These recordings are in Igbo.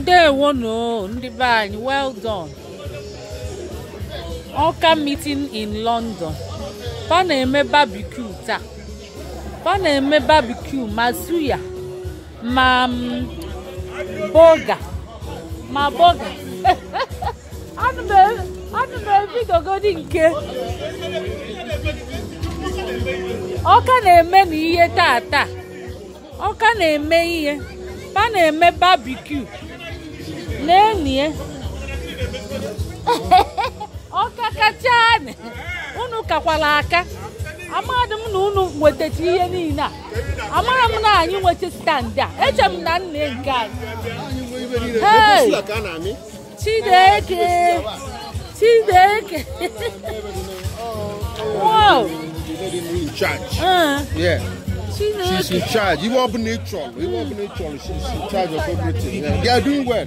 ndewo no ndị be anyị well done ọka meeting in london fa na-eme barbecue taa fa na-eme barbecue ma suya ma mm, boga ma boga anụ m e, ebidogodi nke ọka na-eme na ihe taa taa ọka na-eme ihe fa na-eme barbecue lenie eh? ọkakachane unu kakwara aka amadị m na unu nwetacha ihe niile a amara m na anyị nweta stand a eche m na nne nke anyị chideke chideke wow uh-huh. She's in charge. Even up in nature. Even up in nature. She's in charge of everything. Yeah. They are doing well.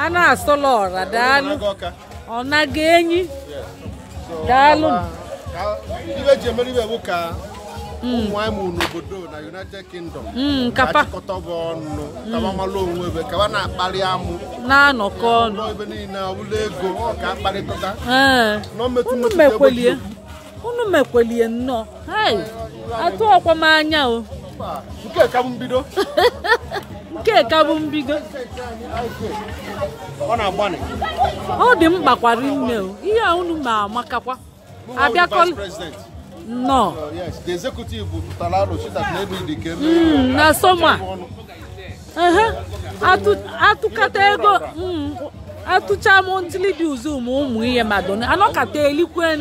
a na-asọla ọra daalụ ọ nago enyi daalụ ibe ji emere ibe bụ ka hmm. ụmụnwaanyị mụrụ n'obodo na United Kingdom hmm, achịkọta bụ ọnụ kabamalụ onwe ebe kaba na-akparị amụ na-anọkọ ọnụ ebe niile ọbụla ego ka akparịkọta eh. unu e mekwelie nnọọ atụ ọkwam anya o nke ka bụ mbido nke ka bụ mbido ọ na-agbanị ọ dị mkpa kwara nne ihe a unu ma amakakwa abịakọ nọ oh, hmm, na sọma atụkata ego hmm. atụcha m ntili dị ụzụ ma ụmụ ihe madona anọkata elikwen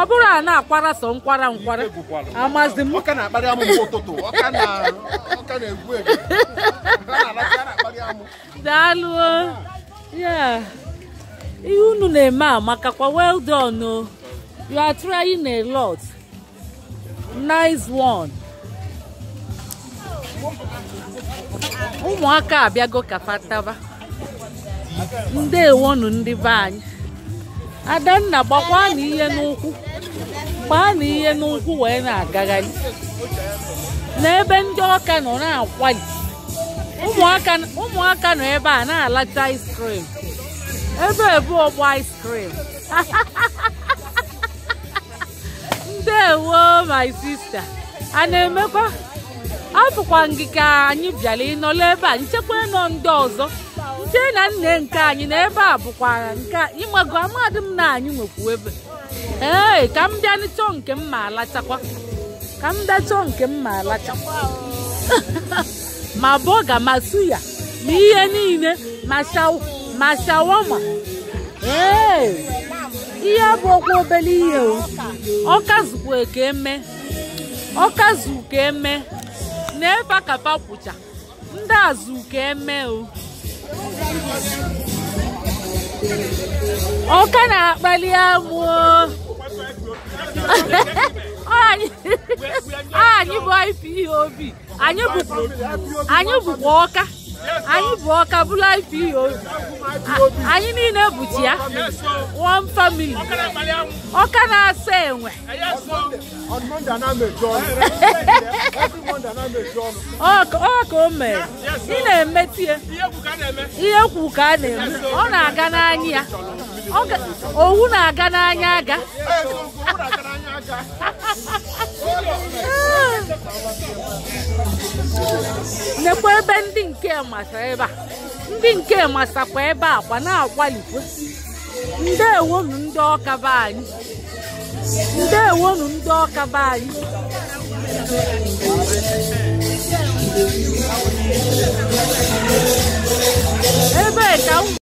ọ bụrụ a na-akwara sọ nkwara nkwara amazi m daalụ ihe unu na-eme amakakwa well done o you are trying a lot nice one ụmụaka abịago ndewonu ndị be anyị adanna gbakwa na ihe n'ụkwụ gbaa na ihe n'ụkwụ wee na-agagharị n'ebe ndị ọka nọ na-akwali ụmụaka nọ ebe a na-alacha ice cream ebe ebu ọgba ice cream ndewo my sister a na-emekwa afụkwa ngị ka anyị bịara ịnọla ebe a nchekwa ịnọ ndị ọzọ nke na nne nke anyị na ebe a bụkwara nke ịmago amadị m na anyị nwekwu ebe ee ka m bịa chọọ nke m ma alachakwa ka m nke m ma alacha ma bọga ma suya ma ihe niile ma shawama ee ihe abụọkwa ọkwa obere ihe ọkazukwa ka eme ọkazu ka eme na ebe a ka ndị azụ ka eme o Ọka na-akpali amụ anyị bụ ife ihe obi anyị bụkwa ọka anyị bụ ọka ihe IPO anyị niile bụtu ya one family ọka na-asa enwe ọka o mere ị na-emetie ihe kwu ka a na-eme ọ na-aga n'anya ya owu na-aga n'anya aga nekwa ebe ndị nke masa ebe a ndị nke masakwa ebe a kwa na-akwalikwa ndewonu ndị ọkaba anyị ndị ọkaba anyị ebe ka